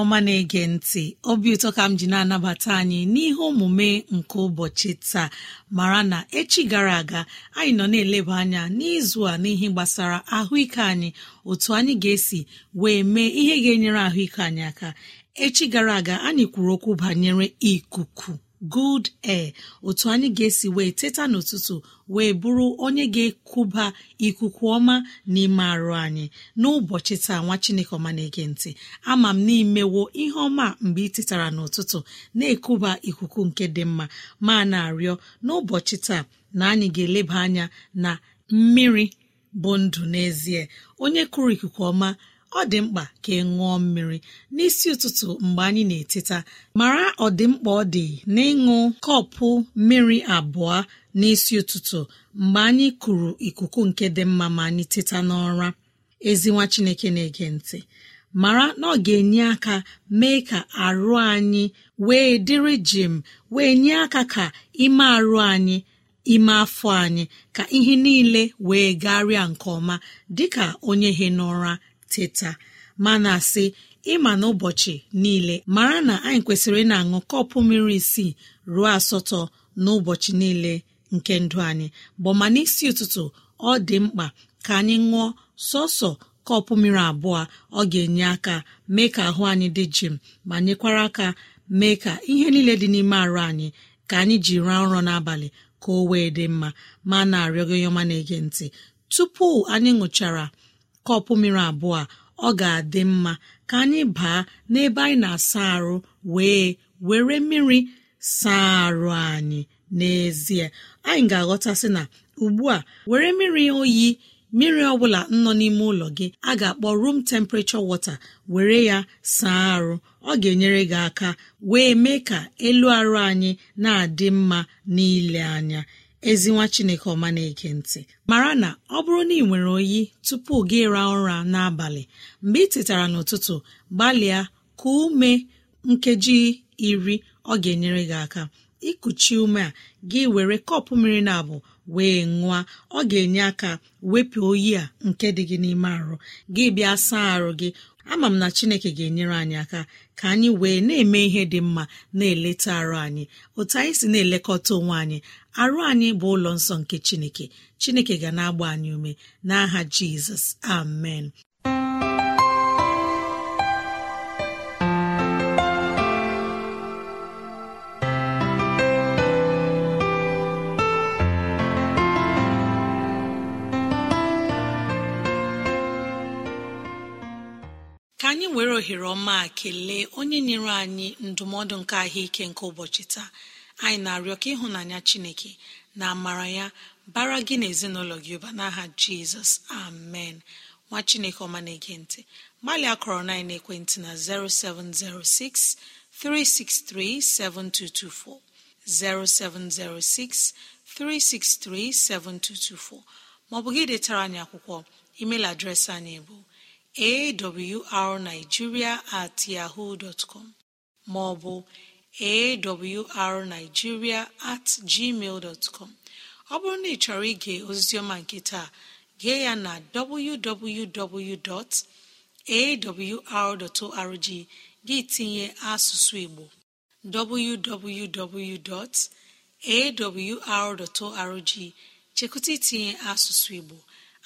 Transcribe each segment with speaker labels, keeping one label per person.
Speaker 1: ọma na-ege ntị obi ụtọ ka m ji na-anabata anyị n'ihe omume nke ụbọchị taa mara na echi gara aga anyị nọ na-eleba anya n'izu a n'ihe gbasara ahụike anyị otu anyị ga-esi wee mee ihe ga-enyere ahụike anyị aka echi gara aga anyị kwuru okwu banyere ikuku good air otu anyị ga-esi wee teta n'ụtụtụ wee bụrụ onye ga ekuba ikuku ọma n'ime arụ anyị n'ụbọchị taa nwa chineke ọma na-ege ntị ama m n'imewo ihe ọma mgbe ị tetara n'ụtụtụ na ekuba ikuku nke dị mma ma na-arịọ n'ụbọchị taa na anyị ga-eleba anya na mmiri bụ ndụ n'ezie onye kụrụ ikuku ọma ọ dị mkpa ka ị ṅụọ mmiri n'isi ụtụtụ mgbe anyị na-eteta mara ọdịmkpa ọ dị n'ịṅụ kọpụ mmiri abụọ n'isi ụtụtụ mgbe anyị kụrụ ikuku nke dị mma ma anyị teta n'ọra ezi nwa chineke na-ege ntị mara na ọ ga-enye aka mee ka arụ anyị wee dịrị jim wee nye aka ka ime arụ anyị ime afọ anyị ka ihe niile wee garịa nke ọma dịka onye he n'ụra teta mana asị ịma n'ụbọchị niile mara na anyị kwesịrị na-aṅụ kọpụ mmiri isii ruo asatọ n'ụbọchị niile nke ndụ anyị bụ ma n'isi ụtụtụ ọ dị mkpa ka anyị ṅụọ sọsọ kọpụ mmiri abụọ ọ ga-enye aka mee ka ahụ anyị dị jim ma nyekwara aka mee ka ihe niile dị n'ime arụ anyị ka anyị ji raa nrọ n'abalị ka o wee dị mma ma na-arịọgo yọma na-ege ntị tupu anyị ṅụchara kọpụ mmiri abụọ ọ ga-adị mma ka anyị baa n'ebe anyị na-asa arụ wee were mmiri saa arụ anyị n'ezie anyị ga-aghọtasị na ugbu a were mmiri oyi mmiri ọbụla nọ n'ime ụlọ gị a ga-akpọ room temperature water were ya saa arụ ọ ga-enyere gị aka wee mee ka elu arụ anyị na-adị mma n'ile anya ezinwa chineke ọma na-ege ntị mara na ọ bụrụ na ị nwere oyi tupu gị ra ụra n'abalị mgbe ị tetara n'ụtụtụ gbalịa ka ume nkeji iri ọ ga-enyere gị aka ịkụchi ume a gị were kọpụ mmiri na abụ wee ṅụa ọ ga-enye aka wepụ oyi a nke dị gị n'ime arụ gị bịa saa arụ gị ama m na chineke ga-enyere anyị aka ka anyị wee na-eme ihe dị mma na-eleta arụ anyị otu anyị si na-elekọta onwe anyị arụ anyị bụ ụlọ nsọ nke chineke chineke ga na-agba anyị ume n'aha jizọs amen ohere ọma kelee onye nyere anyị ndụmọdụ nke ahụike nke ụbọchị taa anyị na-arịọ ka ịhụnanya chineke na amara ya bara gị na ezinụlọ gị ụba n'aha jizọs amen nwa chineke ọma na-ege ntị kọrọ na ekwentị na 0706 363 7224 0706 363 7224 gị detara anyị akwụkwọ email adreesị anyị bụ awrnigeria at yahoo dọtcọm maọbụ awrnigeria at gmail ọ bụrụ na ị chọrọ ige ozizioma nke taa gee ya na www.awr.org gị tinye asụsụ igbo www.awr.org chekụta itinye asụsụ igbo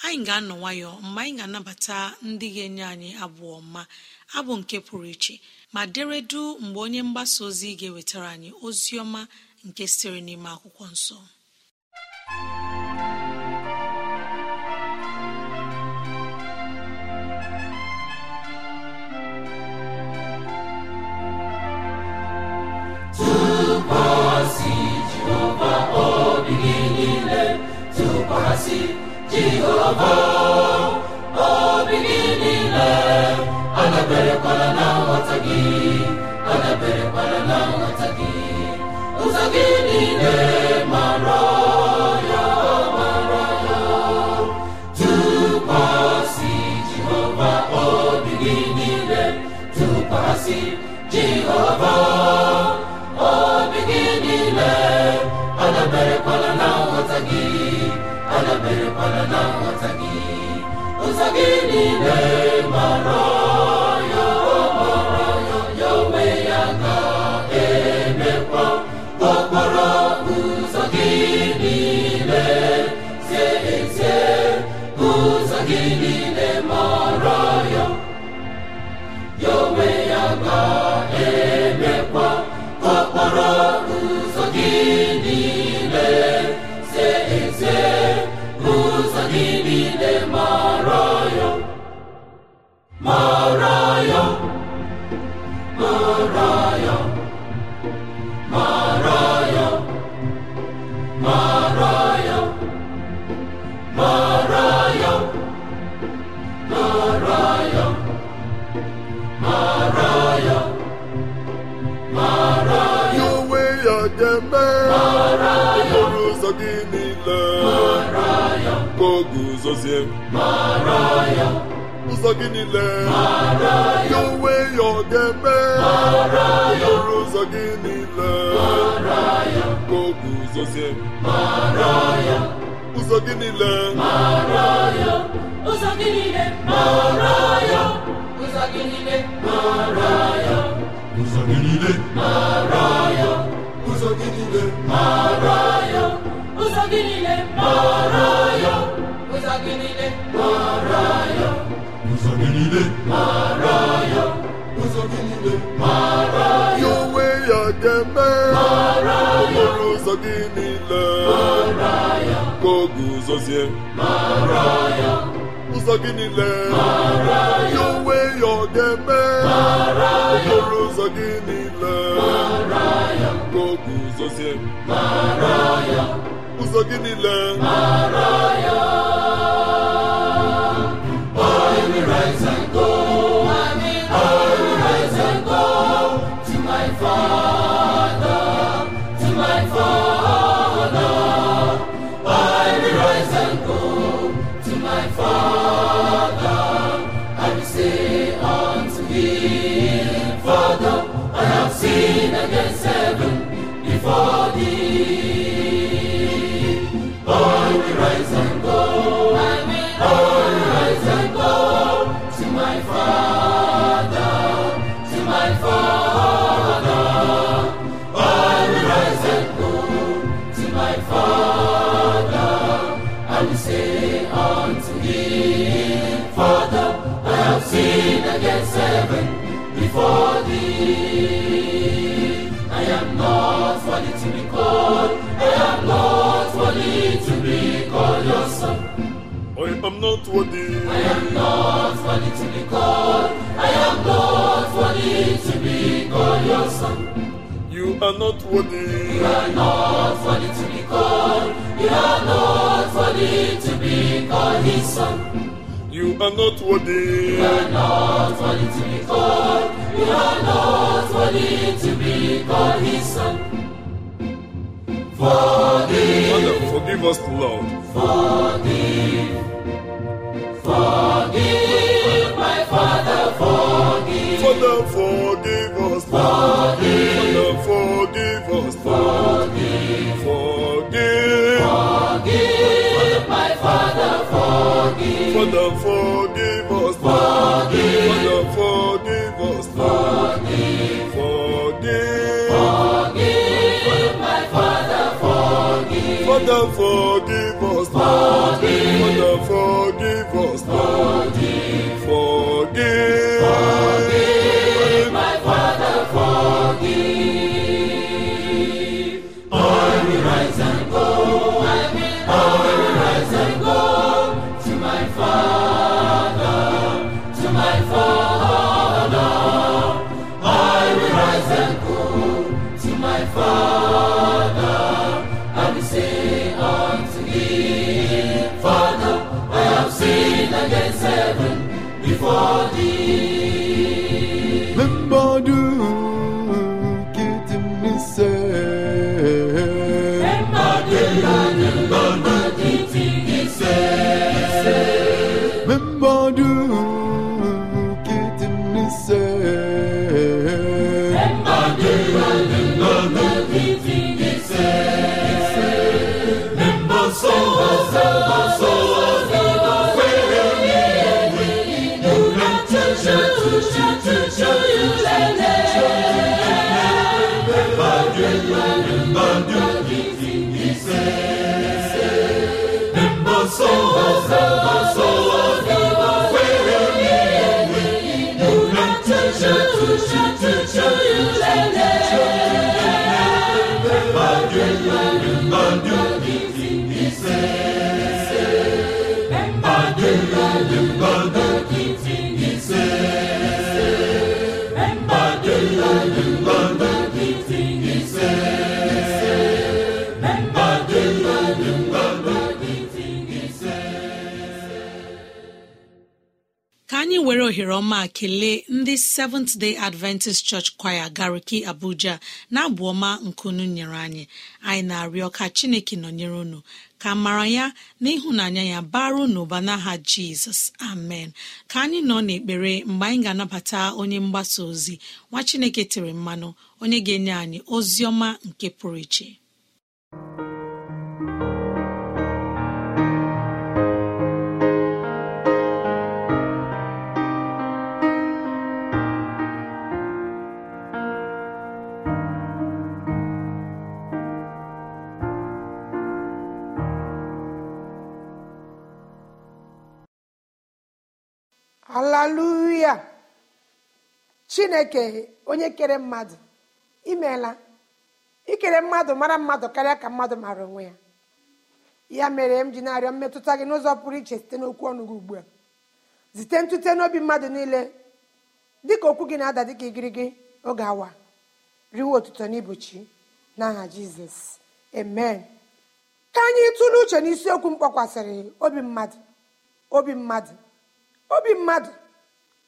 Speaker 1: anyị ga-anọ nwayọ mgbe anyị ga-anabata ndị ga-enye anyị abụọ mma abụ nke pụrụ iche ma deredu mgbe onye mgbasa ozi ga-ewetara anyị ozi ọma nke sitere n'ime akwụkwọ nsọ
Speaker 2: jehova obi gị niile na nghọta gị adaberekwala na nghọta niile
Speaker 3: gọzie ụzọ gị niile ya onwe ya ọ ga-eme ọrụ ụzọ gị niile ka ụzọ gị niile ụzọ gị niile
Speaker 2: ụzọ gị niile ụzọ gị niile ụzọ gị niile ụzọ gị niile ụzọ gị niile mara ya
Speaker 3: ụzọ gị niile mara ya ụzọ gị niile mara ya onwe ya ga-eme mara ya ụzọ gị niile mara ya ka ọ guzozie mara ya ụzọ gị niile mara ya onwe ya ọ ga-eme mara ya ụzọ gị niile mara ya ka ọ guzozie mara ya ụzọ gị niile mara ya
Speaker 2: Lord, for thee to be called. I am not worthy to be called your son.
Speaker 3: I am not worthy. I
Speaker 2: am not worthy to be called. I am not worthy
Speaker 3: to be called your son. You are not worthy. You are not worthy to be called. You are not worthy to be called his son. You are not worthy. You are not worthy to be called. You are not worthy to be called his son. Forgive. forgive us, Lord.
Speaker 2: Forgive.
Speaker 3: Forgive, my Father, forgive. Father, forgive us. Forgive. Father, forgive us. Forgive. Forgive. Forgive, my Father, forgive. Father, forgive us. Forgive.
Speaker 1: Ka anyị were ohere ọma kelee ndị seventh day adventist church choir gariki abuja na abụ ọma nkunu nyere anyị anyị na-arịọ ka chineke nọnyere unu ka mara ya na ịhụnanya ya baru n'ụba n'aha jizọs amen ka anyị nọ n'ekpere mgbe anyị ga-anabata onye mgbasa ozi nwa chineke tere mmanụ onye ga-enye anyị ozi ọma nke pụrụ iche
Speaker 4: haleluya chineke onye kere mmadụ imeela ikere mmadụ mara mmadụ karịa ka mmadụ mara onwe ya ya mere m ji na-arịọ mmetụta gị n'ụzọ pụrụ iche site n'okwu ọnụ gị ugbu a zite ntute n'obi mmadụ niile dịka okwu gị na-ada dịka igirigi oge awa riwe otuto na n'aha jizọs amen ka anyị tụrụ uche n'isiokwu mkpọkwasịrị obi mmadụ obi mmadụ obi mmadụ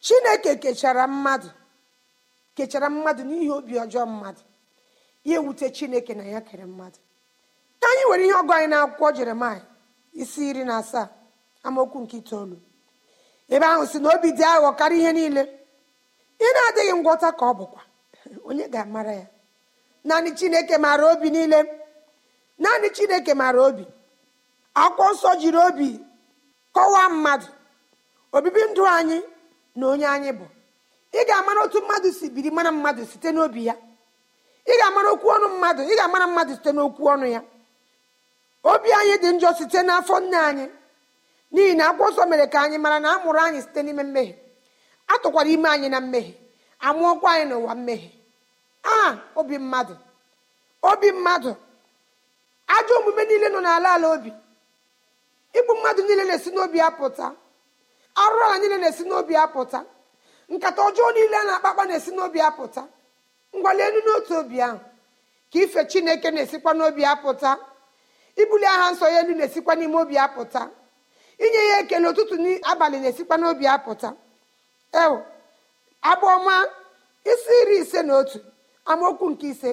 Speaker 4: chineke kechara mmadụ n'ihi obi ọjọọ mmadụ ya ewute chineke na ya kere mmadụ ka anyị nwere ihe ọgụ anyị na-akwụkwọ jeremaya isi iri na asaa amaokwu nke itoolu ebe ahụ si na obi dị aghọ karịa ihe niile ị na-adịghị ngwọta ka ọ bụkwa onye ga-amara ya naanị chineke maara obi niile naanị chineke maara obi akwụkwọ nsọ jiri obi kọwaa mmadụ obibi ndụ anyị na onye anyị bụ ị ga-amara otu mmadụ si biri mara mmadụ site n'obi ya ị ga-amara okwu ọnụ mmadụ ị ga-amara mmadụ site n'okwu ọnụ ya obi anyị dị njọ site n'afọ nne anyị n'ihi na akwụkwọ mere ka anyị mara na a mụrụ anyị site n'ime mmehie a tụkwara ime anyị na mmehie amụọkwa anyị n'ụwa mmehie aha obi mmadụ obi mmadụ ajọ omume niile nọ n'ala ala obi igbu mmadụ niile na-esi n'obi ya pụta. arụrụ anyị niile na-esi n'obi apụta nkata ọjọọ niile a na-akpakpa na-esi n'obi apụta ngwale elu n'otu obi ahụ ka ife chineke na-esikwa n'obi apụta ibuli aha nsọ ya elu na-esikwa n'ime obi apụta inye ya ekele ụtụtụ n'abalị na-esikwa n'obi apụta ewu abụọma isi iri ise na otu amaokwu nke ise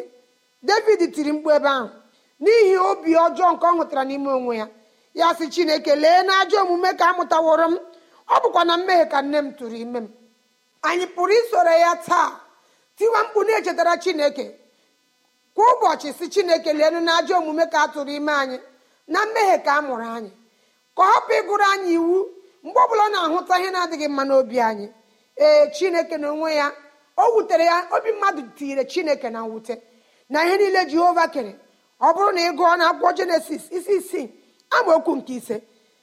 Speaker 4: david tiri mkpu ebe ahụ n'ihi obi ọjọọ nke ọ hụtara n'ime onwe ya ya sị chineke lee na ajọ omume ka amụtaworo m ọ bụkwa na mmehie ka nne m tụrụ ime m anyị pụrụ isoro ya taa tiwa mkpu na-echetara chineke kwa ụbọchị si chineke leenu na ajọ omume ka a tụrụ ime anyị na mmehie ka a mụrụ anyị ka ọ ịgụrụ anyị iwu mgbe ọbụla na-ahụta ihe na-adịghị mma n'obi anyị ee chineke na onwe ya o wutere ya obi mmadụ tinyere chineke na mwute na ihe niile jehova kere ọ bụrụ na ị gụọ na akwụkwọ jenesis isi isii okwu nke ise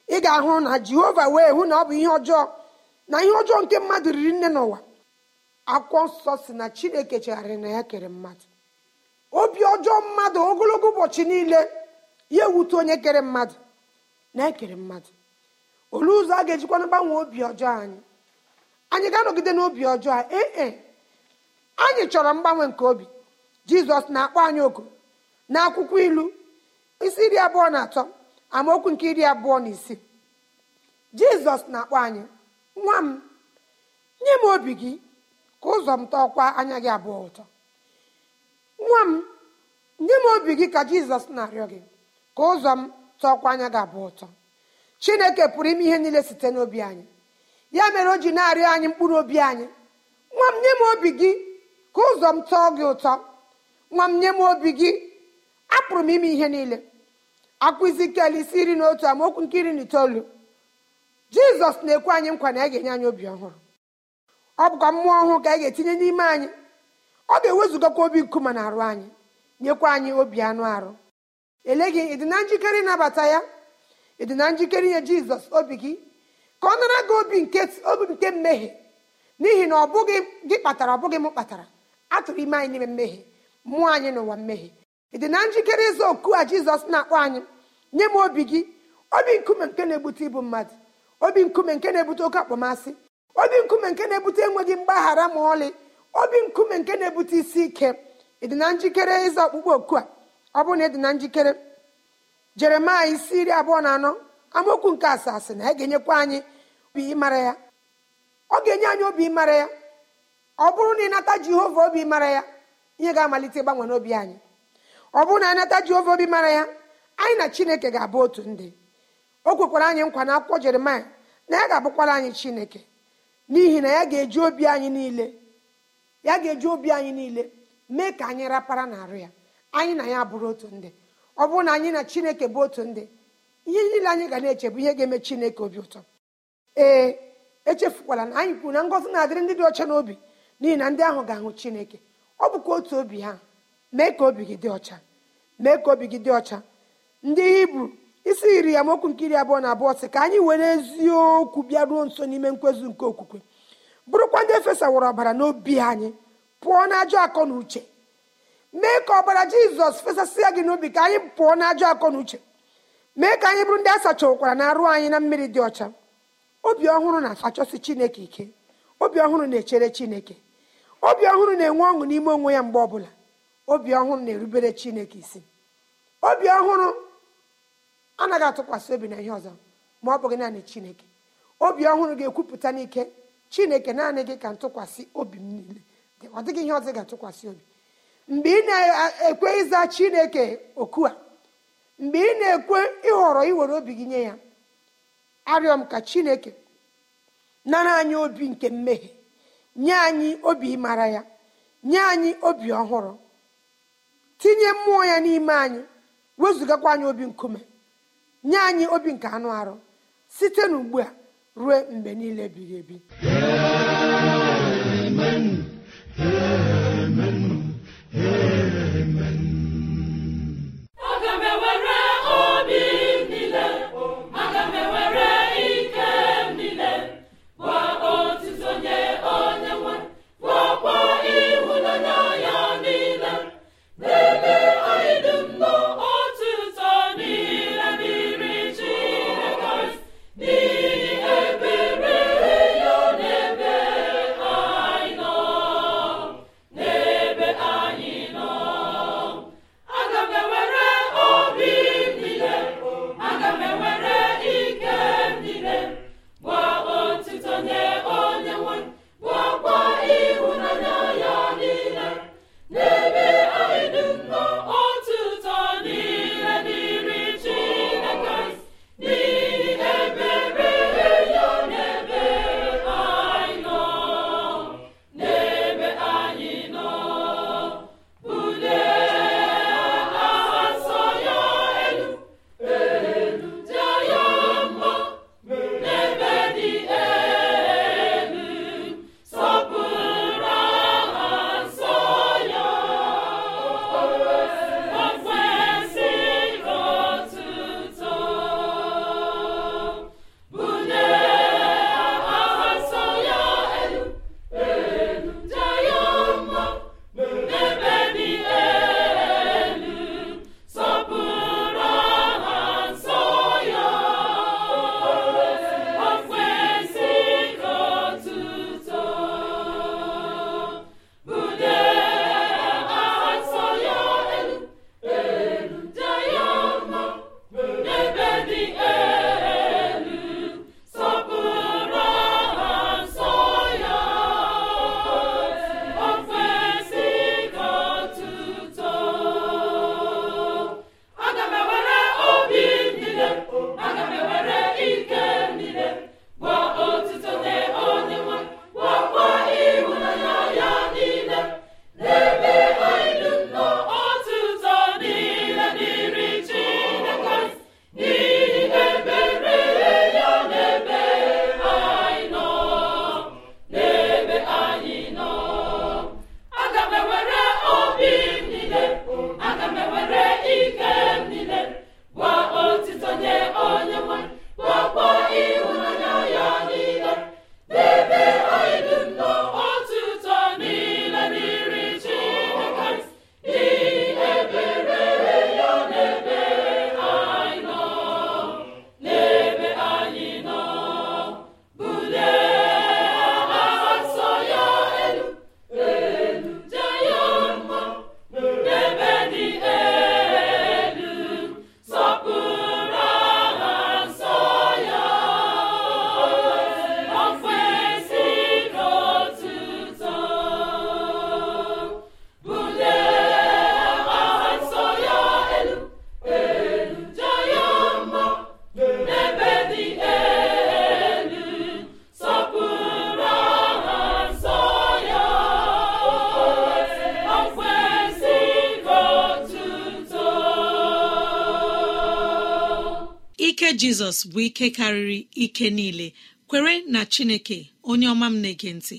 Speaker 4: ị ga-ahụ na jehova wee hụ na ọ bụ ihe ọjọọ na ihe ọjọọ nke mmadụ riri nne n'ụwa akwụkwọ nsọ si na chineke chegharịrị na ya kere mmadụ obi ọjọọ mmadụ ogologo ụbọchị niile ya ewute onye kere mmadụ na ekere mmadụ olee ụzọ a ga-ejikwana gbanwee obi ọjọọ anyị anyị ga-anọgide n'obi ọjọọ ee anyị chọrọ mgbanwe nke obi jizọs na-akpọ anyị oku na akwụkwọ ilu isi iri abụọ na atọ amaokwu nke iri abụọ na isii jizọs na-akpọ anyị nwa m nye m obi gị ka ụzọ m tọọkwa anya gị abụọ ụtọ nwa m nye m obi gị ka jizọs na-arịọ gị ka ụzọ m tọọkwa anya gị abụọ ụtọ chineke pụrụ ime ihe niile site n'obi anyị ya mere o ji na-arịọ anyị mkpụrụ obi anyị nwa m nye m obi gị ka ụzọ m tọọ gị ụtọ nwa m nye m obi gị apụrụ m ime ihe niile akwụzi kel isi nri na otu amaokwu nke iri na itoolu jizọs na-ekwe anyị nkwa na a ga-enye anyị obi ọhụrụ ọ bụkwa mmụọ ọhụụ ka anyị ga-etinye n'ime anyị ọ ga ewezugakwa obi nkume na arụ anyị nyekwa anyị obi anụ arụ ele gị ịdị na njikere ịnabata ya ịdị na njikere inye jizọs obi gị ka ọ nara gị obi nke mmehie n'ihi na ọ bụghị gị kpatara ọ bụghị m kpatara atụrụ ime anyị n'ime mmehie mmụọ anyị n'ụwa mmehie ị dị na njikere ịza oku a jizọs na-akpọ anyị nye m obi gị obi nkume nke na-ebute ibu mmadụ obi nkume nke na-ebute oke akpọmasị obi nkume nke na-ebute enweghị mgbaghara ma ọlị obi nkume nke na-ebute isi ike ị dị na njikere ịza ọkpụkpọ oku a ọ bụrụ na ị dị na njikere jeremaya isi iri abụọ na anọ amaokwu nke asaa asị na ya ga-enyekwa anyị obi ịmara ya ọ ga-enye anyị obi ịmara ya ọ bụrụ na ị nata jehova obi ịmara ya ihe ga-amalite ịgbanwe n'obi anyị ọ bụrụ na anata jehova obi mara ya anyị na chineke ga-abụ otu ndị o kwekwara anyị nkwa na akwụkwọ jeremaya na ya ga-abụkwara anyị chineke n'ihi na ya ga-eji obi anyị niile ya ga-eji obi anyị niile mee ka anyị rapara n'arụ ya anyị na ya bụrụ otu ndị ọ bụrụ na anyị na chineke bụ otu ndị ihe niile anyị ga na-eche bụ ihe ga-eme chineke obi ụtọ ee echefukwala na anyị kwuru na ngọzi na-adịrị ndị dị ọcha n'obi n'ihi na ndị ahụ ga-ahụ chineke ọ bụkwa otu obi ha mee ka obi gị dị ọcha mee ka obi gị dị ọcha ndị hibru isi iri ya mokwu nke iri abụọ na abụọ sị ka anyị were eziokwu bịaruo nso n'ime nkwezu nke okwukwe bụrụkwa ndị wụrụ ọbara n'obi anyị pụọ na ajọ akọ na uche mee ka ọbara jizọs fesasịa gị n'obi ka anyị pụọ na ajọ akọ na uche mee ka anyị bụrụ ndị a sachakwara na arụ anyị na mmiri dị ọcha obi ọhụrụ na-achọsi chineke ike obi ọhụrụ na-echere chineke obi ọhụrụ na-enwe ọṅụ n'ime onwe ya mgbe ọbụla obi ọhụrụ na-erubere chineke isi obi ọhụrụ anaghị atụkwasị obi na ihe ọzọ ma ọ bụghị naanị chineke obi ọhụrụ ga-ekwupụta n'ike chineke naanị gị ka ntụkwasị obi m niile ọ dịghị ihe ọzọ ga-atụkwasị obi mgbe ị na-ekwe ịza chineke oku a mgbe ị na-ekwe ịhọrọ iwere obi gị nye ya arịọ m ka chineke nara anyị obi nke mmehie nye anyị obi ịmara ya nye anyị obi ọhụrụ tinye mmụọ ya n'ime anyị wezụgakwa anyị obi nkume nye anyị obi nke anụ arụ site n'ugbu a ruo mgbe niile ebighị ebi
Speaker 1: jizọs bụ ike karịrị ike niile kwere na chineke onye ọma m na-ege ntị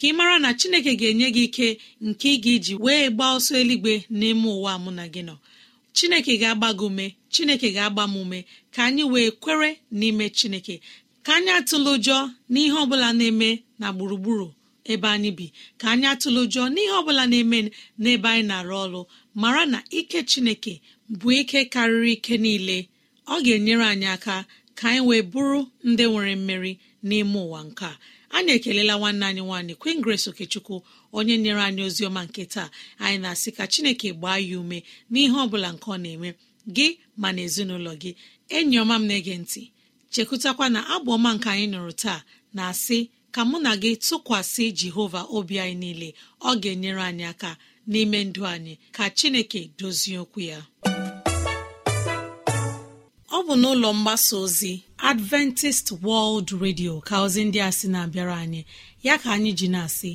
Speaker 1: ka ị mara na chineke ga-enye gị ike nke ị ga-eji wee gbaa ọsọ eluigwe n'ime ụwa mụ na gị nọ chineke ga-agba gị ume chineke ga-agba m ume ka anyị wee kwere n'ime chineke ka anyị atụla ụjọ n'ihe ọbụla na-eme na gburugburu ebe anyị bi ka anyị atụla ụjọ n'ihe ọbụla na-eme n'ebe anyị na-arụ ọrụ mara na ike chineke bụ ike karịrị ike niile ọ ga-enyere anyị aka ka anyị wee bụrụ ndị nwere mmeri n'ime ụwa nke a anyị ekelela nwanne anyị nwaanyị kwin Grace Okechukwu onye nyere anyị ozi ọma nke taa anyị na-asị ka Chineke gbaa ya ume n'ihe ọ bụla nke ọ na-eme gị ma na ezinụlọ gị enyi ọma m na-ege ntị chekụtakwa na abụ ọma nke anyị nụrụ taa na-asị ka mụ na gị tụkwasị Jehova obi anyị niile ọ ga-enyere anyị aka n'ime ndụ anyị ka Chineke dozie okwu ya ọ bụ n'ụlọ mgbasa ozi adventist world radio ka ozi ndị a sị na-abịara anyị ya ka anyị ji na-asị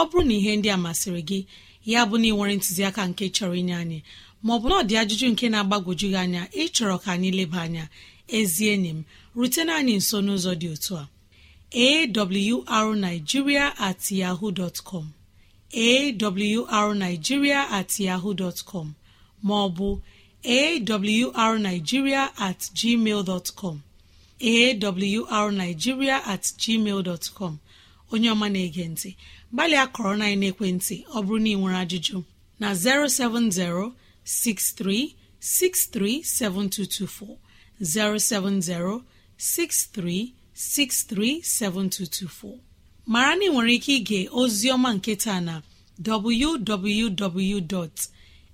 Speaker 1: ọ bụrụ na ihe ndị a masịrị gị ya bụ na ịnwere ntụziaka nke chọrọ inye anyị maọbụ na ọ dị ajụjụ nke na-agbagwoju gị anya ịchọrọ ka anyị leba anya ezie enyi m rutena anyị nso n'ụzọ dị otu a arigiria at yahoo dot com at yahoo dot com maọbụ awrnigeria at com awrnigeria at onye ọma na-ege ntị gbalịa kọrọ na ekwentị ọ bụrụ na ị nwere ajụjụ na 63 7224. mara na ị nwere ike ige ozi ọma nke taa na www.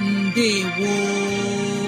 Speaker 1: ndewo